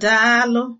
Daalụ